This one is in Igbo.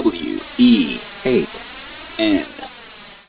W E 8 N